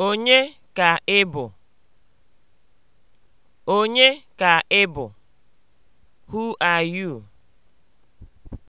Onye ka ị bụ? Onye ka ị bụ? Who are you?